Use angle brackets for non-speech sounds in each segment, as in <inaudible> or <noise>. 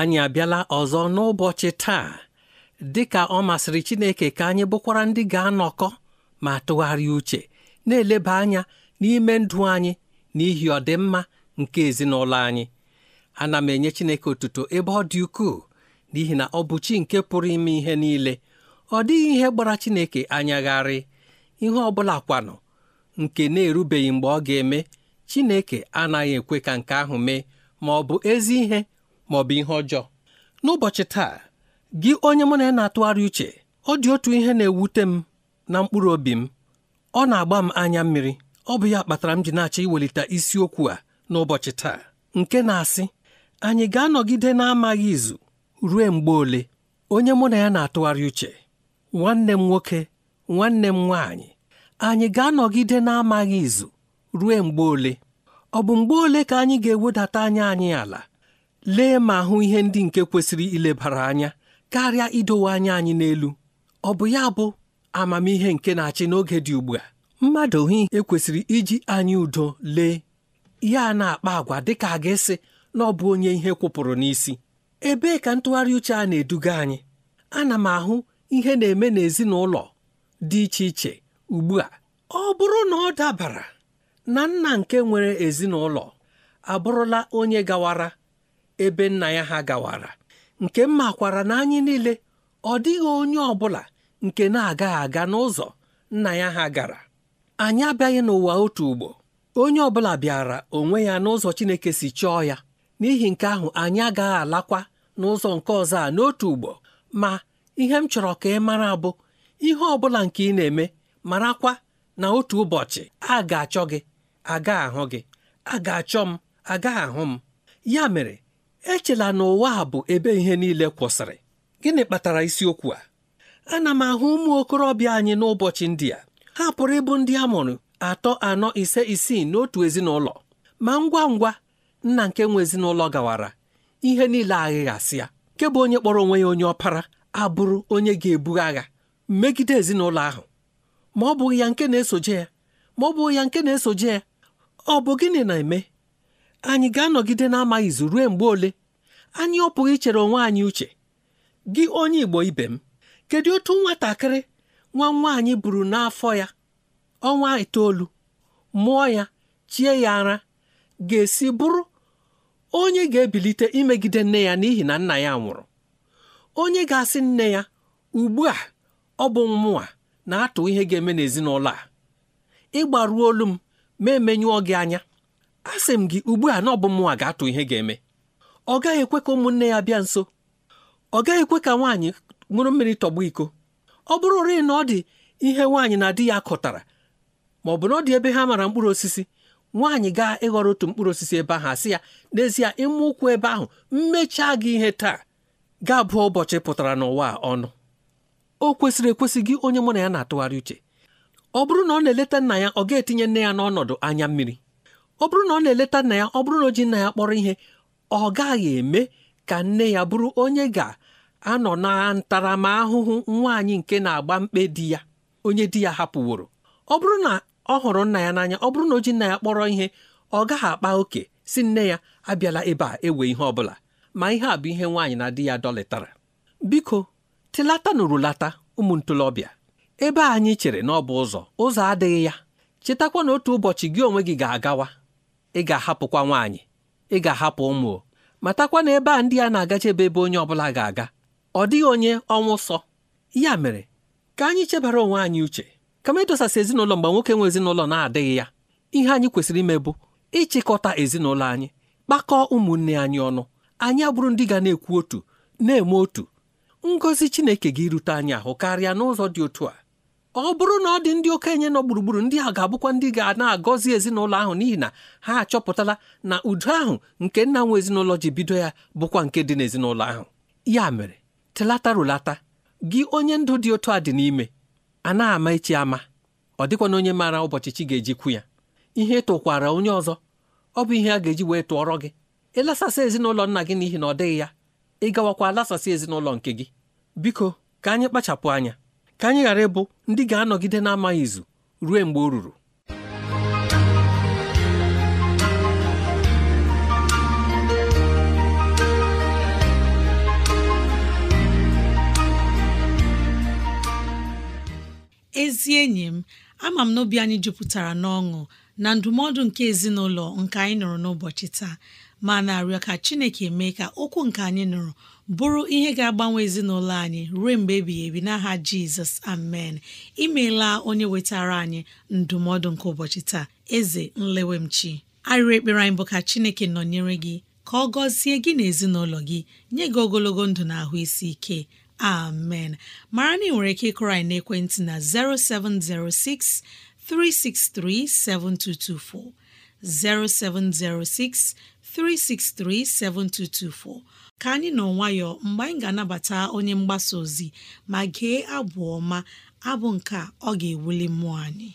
anyị abịala ọzọ n'ụbọchị taa dị ka ọ masịrị Chineke ka anyị bụkwara ndị ga-anọkọ ma tụgharịa uche na-eleba anya n'ime ndụ anyị n'ihi ọdịmma nke ezinụlọ anyị ana m enye Chineke otuto ebe ọ dị ukwuu n'ihi na ọ bụ chi nke pụrụ ime ihe niile ọ dịghị ihe gbara Chineke anyagharị ihe ọ bụla kwanụ nke na-erubeghị mgbe ọ ga-eme Chineke anaghị ekwe ka nke ahụ mee ma ọ bụ ezi ihe ma ọ bụ ihe ọjọọ n'ụbọchị taa gị onye mụ na ya na-atụgharị uche ọ dị otu ihe na-ewute m na mkpụrụ obi m ọ na-agba m anya mmiri ọ bụ ya kpatara m ji na-achọ iwelite isiokwu a n'ụbọchị taa nke na-asị anyị ga-anọgide na-amaghị izu ruo mgbe ole onye mụ na ya na-atụgharị uche nwanne m nwoke nwanne m nwaanyị anyị ga-anọgide na-amaghị izu ruo mgbe ole ọ bụ mgbe ole ka anyị ga-ewedata anya anyị ala lee ma hụ ihe ndị nke kwesịrị ilebara anya karịa idowe anya anyị n'elu ọ bụ ya bụ amamihe nke na-achị n'oge dị ugbu a mmadụ hụ ekwesịrị iji anyị udo lee ya na-akpa agwa dịka a ga-esi na ọ bụ onye ihe kwụpụrụ n'isi ebee ka ntụgharị uche a na-eduga anyị ana m ahụ ihe na-eme n'ezinụlọ dị iche iche ugbu a ọ bụrụ na ọ dabara na nna nke nwere ezinụlọ abụrụla onye gawara ebe nna ya ha gawara nke m makwara na anyị niile ọ dịghị onye ọ bụla nke na-agaghị aga n'ụzọ nna ya ha gara anyị abịaghị n'ụwa otu ugbo onye ọ bụla bịara onwe ya n'ụzọ Chineke si chọọ ya n'ihi nke ahụ anyị agaghị alakwa n'ụzọ nke ọzọ a n'otu ugbo ma ihe m chọrọ ka ị mara bụ ihe ọ bụla nke ị na-eme marakwa na otu ụbọchị a ga-achọ gị aga ahụ gị a ga-achọ m aga ahụ m ya mere echela na ụwa a bụ ebe ihe niile kwụsịrị gịnị kpatara isiokwu a ana m ahụ ụmụ okorobịa anyị n'ụbọchị ndị a ha pụrụ ịbụ ndị a mụrụ atọ anọ ise isii n'otu ezinụlọ ma ngwa ngwa nna nke nwe ezinụlọ gawara ihe niile aghịghasịa nke bụ onye kpọrọ onwe ya onye ọpara abụrụ onye ga-ebu agha megide ezinụlọ ahụ ma ọ bụghị ya nke na-esoje ya ma ọ bụghị ya nke na-esoje ya ọ bụ gịnị na-eme anyị ga-anọgide n'ama izu ruo mgbe ole anyị ọ pụghị ichere onwe anyị uche gị onye Igbo ibe m kedu otu nwatakịrị nwa nwaanyị buru n'afọ ya ọnwa itoolu mụọ ya chie ya ara ga-esi bụrụ onye ga-ebilite imegide nne ya n'ihi na nna ya nwụrụ onye ga-asị nne ya ugbu a ọ bụ mmụọ na-atụ ihe ga-eme n'ezinụlọ a ịgbaruo olu m ma emenyụọ gị anya asị m gị ugbu a na ọ bụ mụnwa ga-atụ ihe ga-eme ọ gaghị ekwe ka ụmụnne ya bịa nso ọ gaghị ekwe ka nwaanyị ṅụrụ mmiri tọgbọ iko ọ bụrụ rịị na ọ dị ihe nwaanyị na di ya kọtara ma ọ bụ na ọ dị ebe ha mara mkpụrụ osisi nwaanyị gaa ịghọrọ otu mkpụrụ osisi ebe ahụ asị ya n'ezie ịma ụkwụ ebe ahụ mmechaa gị ihe taa gaa bụọ ụbọchị pụtara n'ụwa ọnụ o kwesịrị ekwesị gị onye mụ na ya na-atụgharị uche ọ bụrụ na ọ na-eleta nna ya ọ ga-etinye nne ya n'ọnọdụ anya mmiri ọ bụrụ na ọ na-eleta nna ya ọ bụrụ na o ji nna ya kpọrọ ihe ọ gaghị eme ka nne ya bụrụ onye ga-anọ na ntaramahụhụ nwaanyị nke na-agba mkpe di ya onye di ya hapụworo ọ bụrụ na ọ hụrụ nna ya n'anya ọ bụrụ na o ji nna ya kpọrọ ihe ọ gaghị akpa oke si nne ya abịala ebe a ewe ihe ọ bụla ma ihe a bụ ihe nwaanyị na di ya dọlịtara biko tilata nụrụlata urulata ụmụ ntolobịa ebe anyị chere na ọ bụ ụzọ ụzọ adịghị ya chetakwa na otu ụbọchị gị onwe gị ga-agawa ị ga-ahapụkwa nwaanyị ị ga-ahapụ ụmụ matakwa na ebe a ndị a na-agacha ebe ebe onye ọbụla ga-aga ọ dịghị onye ọnwụ sọ ya mere ka anyị chebara onwe anyị uche kama ịdosasị ezinụlọ mgbe nwoke nwe ezinụlọ na-adịghị ya ihe anyị kwesịrị ime bụ ịchịkọta ezinụlọ anyị kpakọọ ụmụnne anyị ọnụ anyị abụrụ ndị ga na-ekwu otu na-eme otu ngọzi Chineke ga rute anyị ahụ karịa n'ụzọ dị otu a ọ bụrụ na ọ dị ndị okenye nọ gburugburu ndị a ga-abụkwa ndị ga na-agọzi ezinụlọ ahụ n'ihi na ha achọpụtala na udo ahụ nke nna nwe ezinụlọ ji bido ya bụkwa nke dị n'ezinụlọ ahụ ya mere telata rụlata gị onye ndụ dị otu a dị n'ime a na-ama echi ama ọ dịkwa na onye maara ụbọchị chi ga-eji kwu ya ihe tụkwara onye ọzọ ọ bụ ihe a ga-eji wee tụọrọ gị ịlasasị ezinụlọ nna gị n'ihi na ọ dịghị ya ị gawakwa lasasị ezinụlọ nke gị biko ka anyị kpachapụ anya ka anyị ghara ịbụ ndị ga-anọgide n'amaghị izu ruo mgbe o ruru ezi enyi m ama m n'obi anyị jupụtara n'ọṅụ na ndụmọdụ nke ezinụlọ nke anyị nụrụ n'ụbọchị taa ma na-arịọ ka Chineke mee ka okwu nke anyị nụrụ bụrụ ihe ga-agbanwe ezinụlọ anyị ruo mgbe ebighị ebi n'aha Jizọs amen imeela onye wetara anyị ndụmọdụ nke ụbọchị taa eze nlewemchi arịrị ekpere anyị bụ ka Chineke nọnyere gị ka ọ gọzie gị na ezinụlọ gị nye gị ogologo ndụ na ahụ isi ike amen mara na ị nwere ike ịkụrọ anyị na'ekwentị na 0706 363 7224 0706 7224 ka anyị nọ nwayọọ mgbe anyị ga-anabata onye mgbasa ozi ma gee abụ ọma abụ nke ọ ga-ewuli mmụọ anyị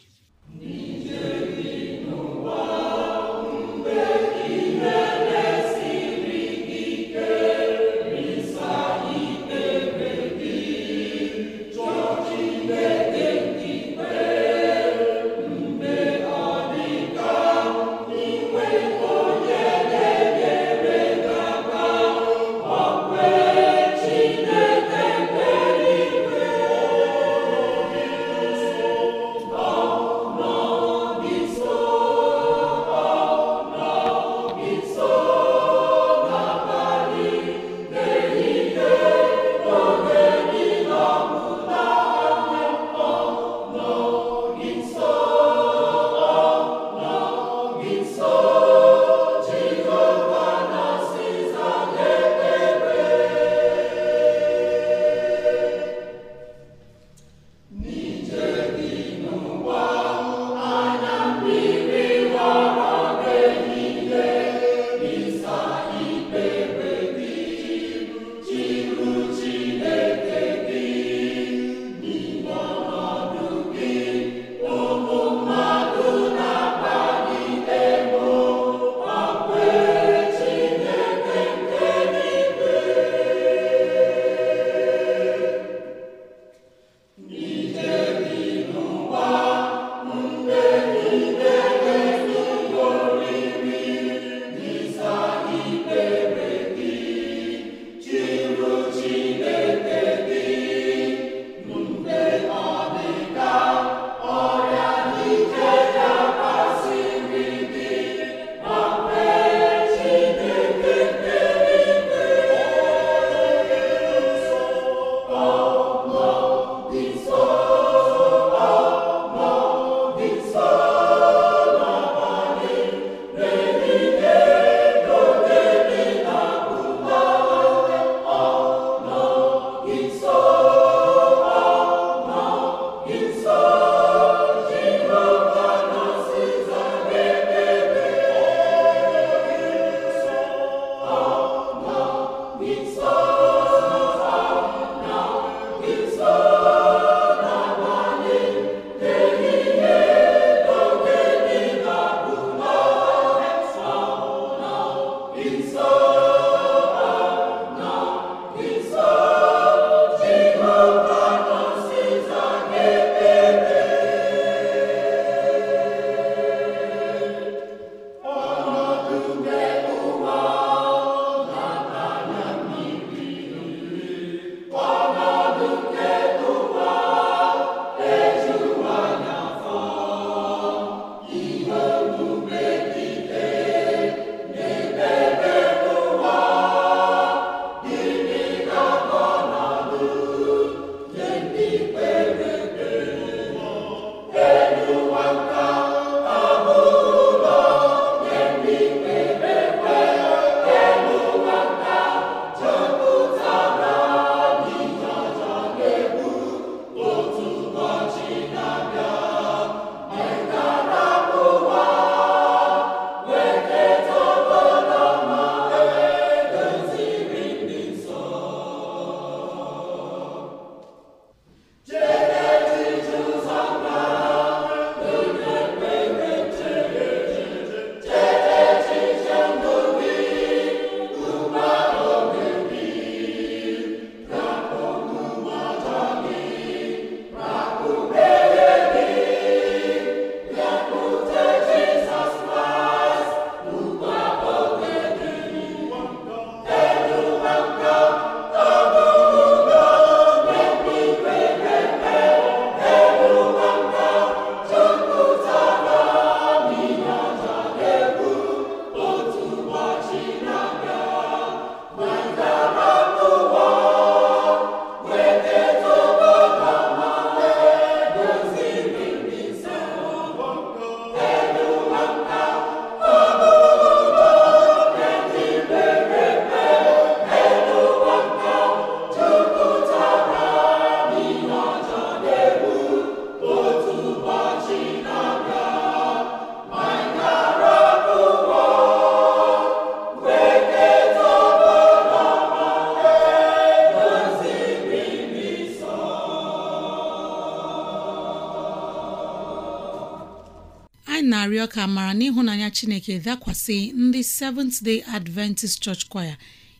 ka mara n'ịhụnanya chineke dakwasị ndị Seventh Day Adventist Church Choir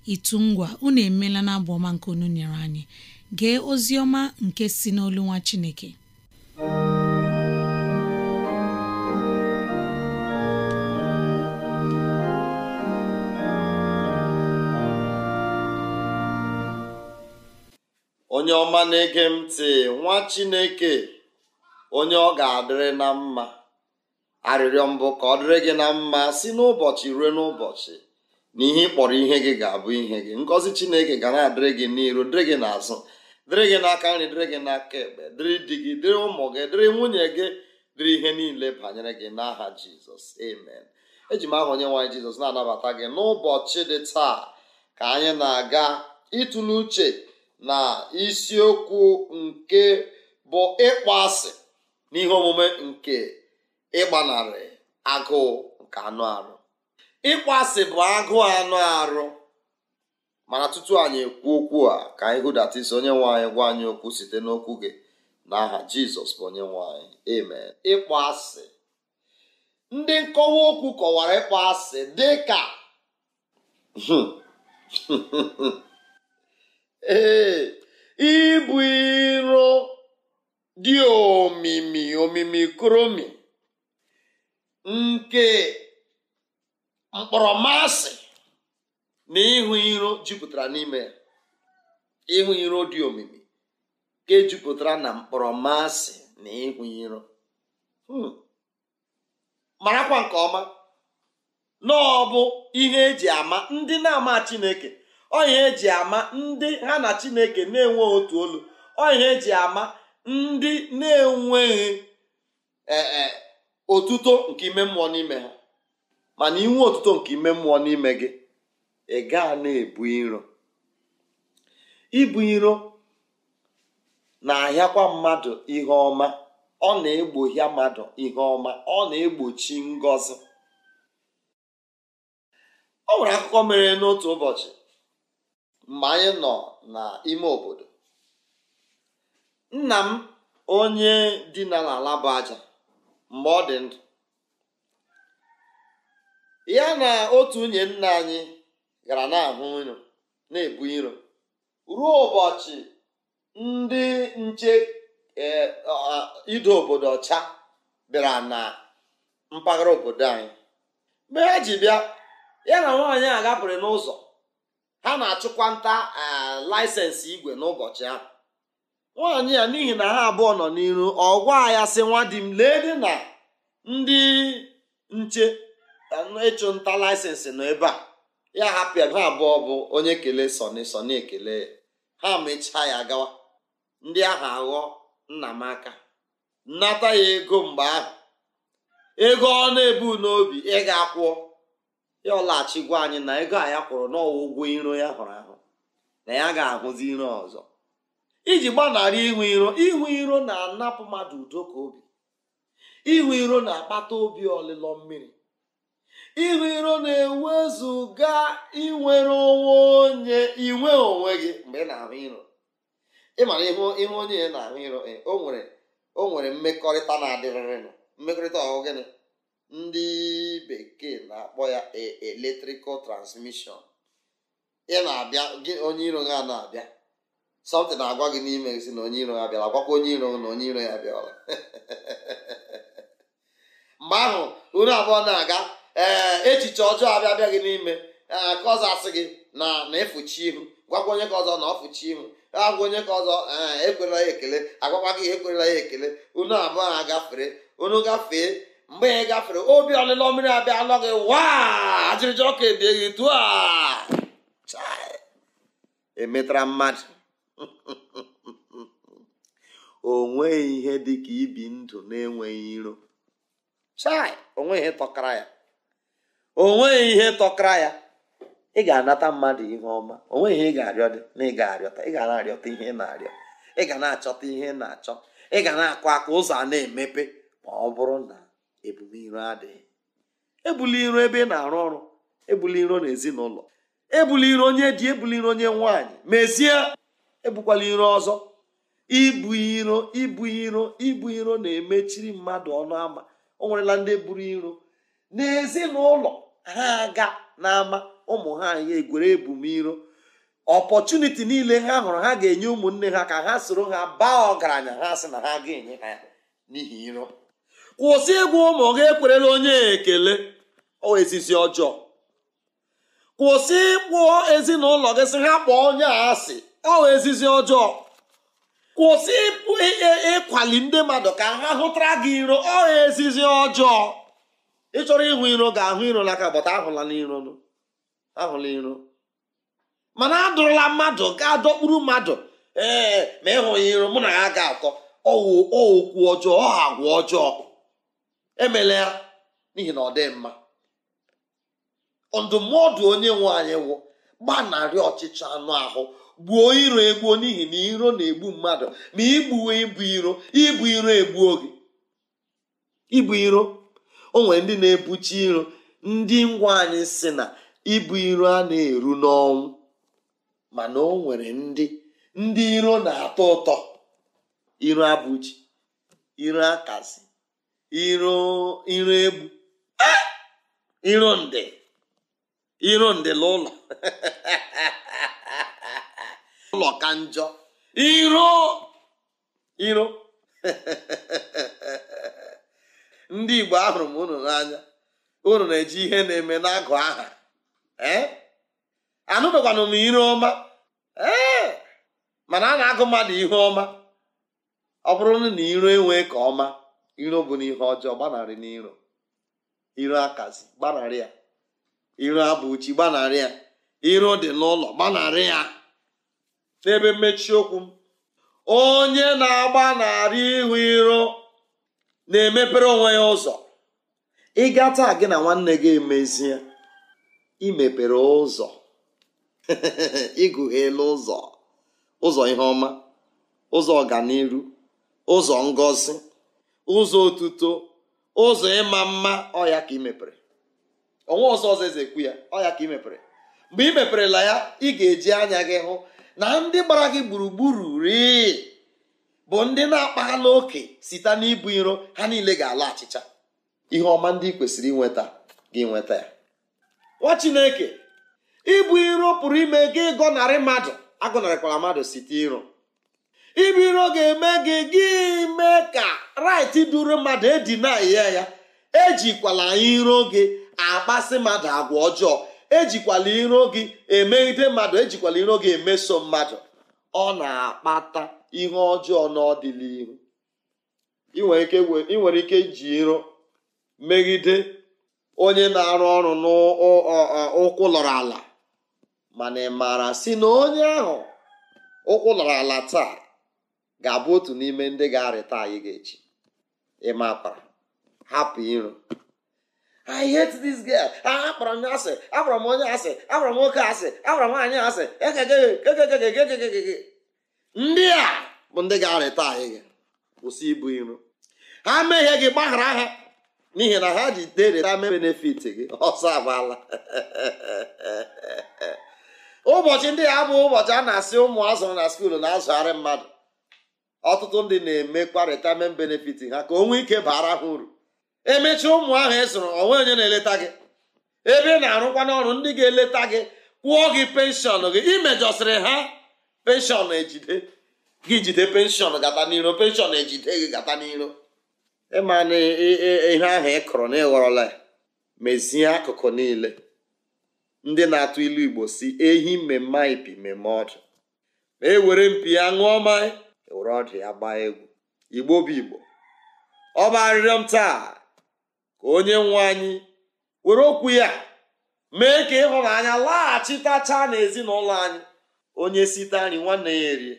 itu ngwa unu emeela na ọma nke unu nyere anyị gee ozi ọma nke si n'olu nwa chineke onye ọma na-ege m ntị nwa chineke onye ọ ga-adịrị na mma arịrịọ mbụ ka ọ dịrị gị na mma si n'ụbọchị ruo n'ụbọchị na ihe ị kpọrọ ihe gị ga-abụ ihe gị ngọzi chineke ga na-adịrị gị n'iru dịrị gị n'azụ dịrị gị n'aka nri dịrị gị n'aka ekpe dịrị di gị dịrị ụmụ gị dịrị nwunye gị dịrị ihe niile banyere gị n'aha jizọs amen eji m aha onye nwaanyị jizọs na-anabata gị n'ụbọchị dị taa ka anyị na-aga ịtụle uche na isiokwu nke bụ ịkpọ asị n'ihe omume nke ịgbanarị agụụ nke anụ arụ ịkpọasị bụ agụụ anụ arụ mana tutu anyị ekwu okwu a ka anyị onye nwe anyị gwa anyị okwu site n'okwu gị n'aha jizọs bụ onye nwanyị amen ịkpasị ndị nkọwa okwu kọwara ịkpasị dị ka hmm. <laughs> ee ibu iro dị omimi omimi kromi nke mkpọrọmasị na ịhụ iro jupụtara n'ime ya ịhụ iro dị omimi nke jupụtara na mkpọrọmasị na ịhụ iro hmm. marakwa nke ọma na ọ bụ ihe eji ama ndị na-ama Chineke ọ ihe eji ama ndị ha na Chineke na-enwe otu olu ọ ihe eji ama ndị na-enweghị e, e, otuto nke ime mmụọ n'ime ha mana inwe otuto nke ime mmụọ n'ime gị ị gaa na-ebu iro ibu iro na-ahịakwa mmadụ ihe ọma ọ na-egbohia mmadụ ihe ọma ọ na-egbochi ngọzi ọ nwere akụkọ mere n'otu ụbọchị mgbe anyị nọ n'ime obodo nna m onye dina n'ala bụ aja mgbe ọ dị ndụ ya na otu nwunye nna anyị gara na-ahụ iro na-ebu iro ruo ụbọchị ndị nche e, ido obodo ọcha bịara na mpaghara obodo anyị mgbe ha ji bịa ya na nwaanyị a gapụrụ n'ụzọ ha na-achụkwa nta e, laịsensị igwe n'ụbọchị ahụ nwaanyị ya n'ihi na ha abụọ nọ n'iru ọgwa ya sị nwa di m lee dị na ndị nche ịchụ nta laịsensị nọ ebe a ya hapụ ya ha abụọ bụ onye kelee sọni sọni ekele ha mechaa ya gawa ndị ahụ aghọ nna m aka nnata ya ego mgbe ahụ ego ọ na-ebu n'obi ị ga-akwụọ ya ọlachigwa anyị na ego a ya kwụrụ n'ọwa ụgwọ iro ya hụrụ ahụ na ya ga-ahụzi iro ọzọ iji gbanarị ihu iro ịhụ iro na-anapụ mmadụ udo ka obi ihu iro na-akpata obi ọlịlọ mmiri ịhụ iro na-ewezụga inwere onwe onye inwe onwe gị mgbe ị na-ahụ iro ịmara ihu onye onye na-ahụ iro eh, o nwere mmekọrịta na-adịrịrịnụ mmekọrịta ọhụ gịnị ndị bekee na-akpọ ya eh, eletrikal transmission ị na-abịa gị onye iro ga na-abịa sọmtị na-agwa gị n'ime si na onye iro ya bịara agwakwa onye iro na onye iro ya bịara <laughs> mgbe ahụ unu abụọ na-aga ee echiche ọjọọ abịa abịa gị n'ime ka ọzọ asị gị na na ịfụchi ihu gwakwa onye ka ọzọ na ọfụchi ihu agwa onye ka ọzọ ekwerela ya ekele agwakwa gị ekwerela ya ekele unu abụọ ha gafere unu gafee mgbe ya gafere obi ọlịlọ mmiri abịa alọ gị waa ajịrịja ọka ebie gị tụọ emetara mmadụ <laughs> o nweghị ihe dị ka ibi ndụ na-enweghị iro chai onweghị ihe tọkara ya onweghị ihe tọkara ya ị ga-anata mmadụ ihe ọma onweghị ihe ị ga-arịọ dị na ị ga-arịọta ị ga na-arịọta ihe ị na-arịọ ị ga na-achọta ihe ị na-achọ ị ga na-akụ aka ụzọ a na-emepe ma ọ bụrụ na ebuli adịghị ebuli iro ebe ị na-arụ ọrụ ebuli iro n'ezinụlọ ebuli iro onye dị ebuli iro onye nwaanyị mezie ebukwala iro ọzọ ibu iro ibu iro ibu iro na-emechiri mmadụ ọnụ ama o nwerela ndị buru iro n'ezinụlọ ha aga n'ama ụmụ ha ya egwere ebumiro ọpọchuniti niile ha hụrụ ha ga-enye ụmụnne ha ka ha soro ha baa ọgaranya ha sị na ha ga-enye ha n'ihi iro kwụsị ịgwa ụmụ gị ekwerela onye ekele ezizi ọjọọ kwụsị ịkpụọ ezinụlọ gị sị ha kpọọ onye asị ọwa ezizi ọjọọ kwụsị ịpụ ịkwali ndị mmadụ ka ha hụtara gị iro ọha ezizi ọjọọ ịchọrọ ịhụ iro ga-ahụ iro n'aka bọta ahụla n'iro ahụla iro mana adụrụla mmadụ ga dọkpuru mmadụ ee ma ịhụghị iro mụ na ya ga-akọ ọwụ okwu ọjọọ ọ agwa ọjọọ emela ya n'ihi na ọ dị mma ndụmọdụ onye nwe anyị wụ gbanarị ọchịchị anụ ahụ gbuo iro egbuo n'ihi na iro na-egbu mmadụ ma igbuwe ibu iro ibu iro egbuo gị ibu iro o nwere ndị na-ebuchi iro ndị ngwa anyị si na ibu iro a na-eru n'ọnwụ mana o nwere ndị ndị iro na-atọ ụtọ iro abụchi iro akasi iro iro egbu ah! iro ndị iro ndị n'ụlọ <laughs> ụlọ ka njọ iro iro <laughs> ndị igbo ahụrụ m unu n'anya unu na-eji ihe na-eme agụ aha anụbekwana m iro ọma ee mana a na-agụ mmadụ ihe ọma ọ bụrụ na iro enwee ka ọma iro bụ n'ihe ọjọọ gbanarị n'iro iro akazi gbanarị ya iro abụ uchi gbanarị ya iro dị n'ụlọ gbanarị ya n'ebe mmechi okwu m onye na agba na-arị ihu iro na-emepere onwe ya ụzọ ịga taa gị na nwanne gị emezie imepere ụzọ ịgụghela <laughs> ụzọ ụzọ ihe ọma ụzọ ọganiru ụzọ ngọzi ụzọ otuto ụzọ ịma mma ọya ka imepere onwe ọzọ ọzọ eze ya ọya ka imepere mgbe meperela ya ị ga-eji anya gị hụ na ndị gbara gị gburugburu ri bụ ndị na-akpaghala oke site n'ibu iro ha niile ga-ala achịcha ihe ọma ndị kwesịrị inweta gị nweta ya nwa chineke ibu iro pụrụ ime gị gọnarị mmadụ agọnarịkwara mmadụ site iro ibu iro ga-eme gị gị mee ka rait duru mmadụ edina ya ya ejikwala iro gị akpasị mmadụ agwa ọjọọ ejikwala iro gị emeghide mmadụ ejikwala iro gị emeso mmadụ ọ na-akpata ihe ọjọọ n'ọdịnihu ị nwere ike iji iro megide onye na-arụ ọrụ n'ụkwụ lọrọ ala mana ị maara si na onye ahụ ụkwụ lọrọ ala taa ga-abụ otu n'ime ndị ga-arịta anyị ga-echi ịmapara hapụ iro i hate this girl akpọrọ ah, m ya asị akpọrọ m onye asị akpọrọ m nwoke asị akpọrọ m anyị asị ndị a bụ ndị ga-arịta anyị gị kwụsị ibu iro ha mehie gị gbaghara ha n'ihi na ha ji dereta me benefit gị ọsọ agbala <laughs> ụbọchị ndị a bụ ụbọchị a na-asị ụmụ azụrụ na skuulu na-azụgharị mmadụ ọtụtụ ndị na emekwa kwarịta me benefit ha ka o nwee ike bara ha uru emechi ụmụ ahụ ị e zụrụ onwe onye na-eleta gị ebe ị na-arụkwa n'ọrụ ndị ga-eleta gị kwụọ gị penshọn gị imejọsịrị ha penshọn ejide gị jide penshọn gata n'iro penshọn ejide gị gata n'iro ịma na ihe ahụ ị kụrụ na ịghọrọla mezie akụkụ niile ndị na-atụ ilu igbo si ehi mmemme ipi mmemme ọdụ ma e were mpi ya ṅụọ mmanya ewere ọdụ ya gbaa egwu igbo bụ igbo ọ bụ arịrịọ m taa ka onye nwe anyị were okwu ya mee ka ịhụnanya laghachitacha n'ezinụlọ anyị onye site nri nwanne ya erie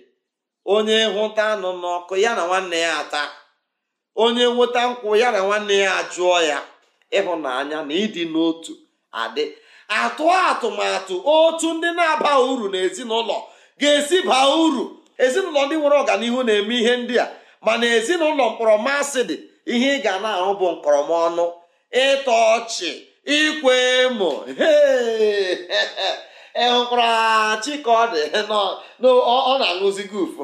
onye hụta anụ n'ọkụ ya na nwanne ya ata onye nweta nkwụ ya na nwanne ya ajụọ ya ịhụnanya na ịdị n'otu adị atụ atụmatụ otu ndị na-aba uru na ezinụlọ ga-esi baa uru ezinụlọ ndị nwere ọganihu na-eme ihe ndị a mana ezinụlọ mkpọrọ masị dị ihe ị ga na-ahụ bụ nkọrọmọnụ ịtọ ọchị ikwe emo ị hụkwarachi ka ọ dị ọ na-aṅụzi gufu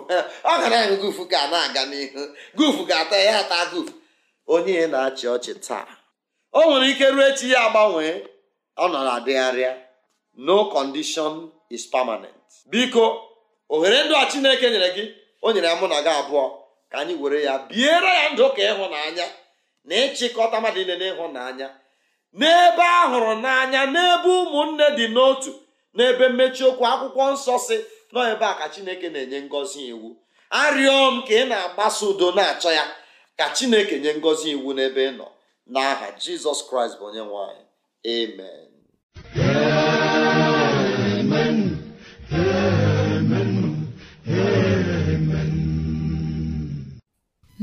ọ ga na-aṅụ gufu ga na-aga n'ihu gufu ga-ata ya ata guf onye na-achị ọchị taa o nwere ike ruo echi ya agbanwee ọ nọ na-adịgharịa no condition is permanent biko ohere ndụ a Chineke nyere gị o nyere ya mụ na gị abụọ ka anyị were ya biere ya ndụ ka ịhụnanya na ịchịkọta mmadụ na n'ịhụnanya n'ebe a hụrụ n'anya n'ebe ụmụnne dị n'otu n'ebe mmechi okwu akwụkwọ nsọ si nọ ebe a ka chineke na-enye ngọzi iwu arịọ m ka ị na-agbasa udo na-achọ ya ka chineke nye ngọzi iwu n'ebe ị nọ n'aha jizọs kraịst bụ onye nwanyị amen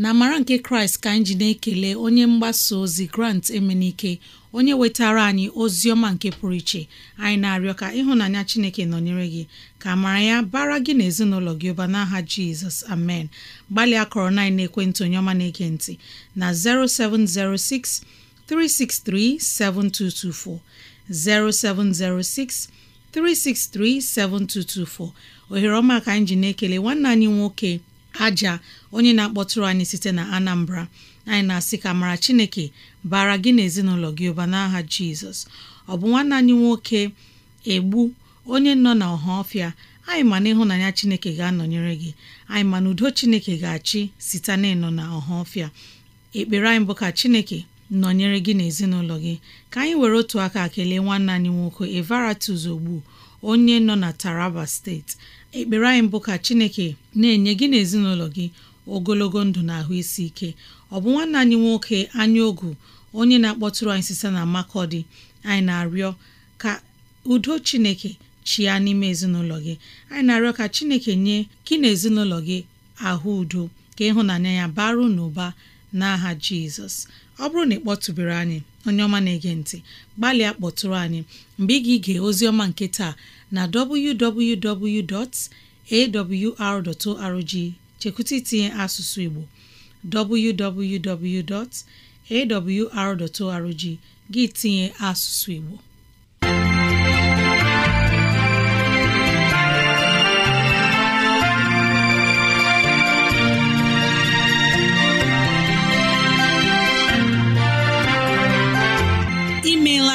na amara nke kraịst ka anyị ji na-ekele onye mgbasa ozi grant emenike onye wetara anyị ozi ọma nke pụrụ iche anyị na-arịọ ka ịhụnanya chineke nọnyere gị ka amara ya bara gị na ezinụlọ gị ụba n'aha jizọs amen gbalịa akọrọ na ekwentị onye ọma na-ege na 0706 363 7224 0706 363 7224 ohere ọma ka anyị ji na-ekele nwanne anyị nwoke aja onye na-akpọtụrụ anyị site na Anambra anyị na-asị ka mara Chineke bara gị na ezinụlọ gị ụba n'aha Jizọs ọ bụ nwanne anyị nwoke egbu onye nọ na ọha ọfịa anyị ma na ịhụnanya Chineke ga-anọnyere gị anyị ma na udo Chineke ga-achị site na ịnọ na ọha ọfịa ekpere anyị bụ ka Chineke nọnyere gị na ezinụlọ gị ka anyị were otu aka kelee nwanne anyị nwoke Evaratus Ogbu onye nọ na Taraba steeti ekpere anyị bụ ka chineke na-enye gị na ezinụlọ gị ogologo ndụ na ahụ isi ike ọ bụ nwanne anyị nwoke anya ogu onye na-akpọtụrụ anyị sisa na makọdị anyị na-arịọ ka udo chineke chia n'ime ezinụlọ gị anyị na-arịọ ka chineke nye gị na ezinụlọ gị ahụ udo ka ịhụnanya ya baru n'ụba n'aha jizọs ọ bụrụ na ị kpọtụbere anyị onye ọma na-ege ntị gbalịa kpọtụrụ anyị mgbe ị ga-ige ozi ọma nke taa na www.awr.org chekwụta itinye asụsụ Igbo arrg gị tinye asụsụ Igbo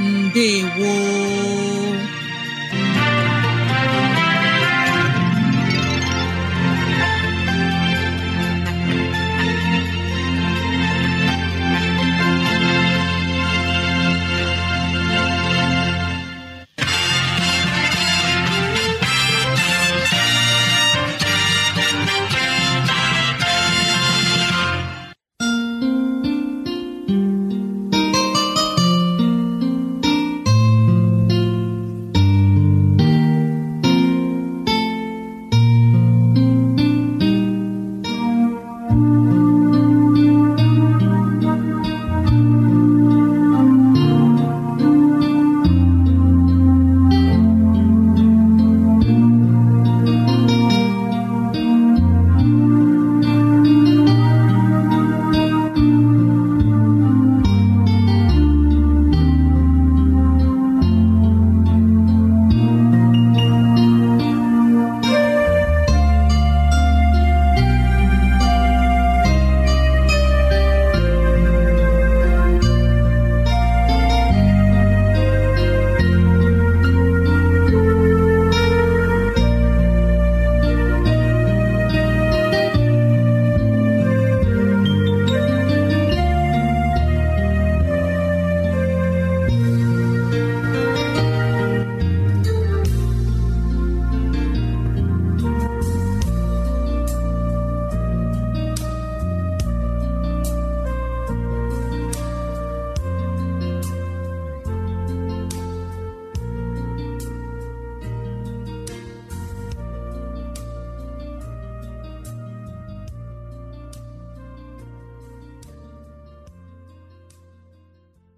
ndewo